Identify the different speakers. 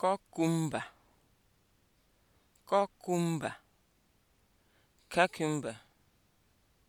Speaker 1: Kọkụmba! cucumber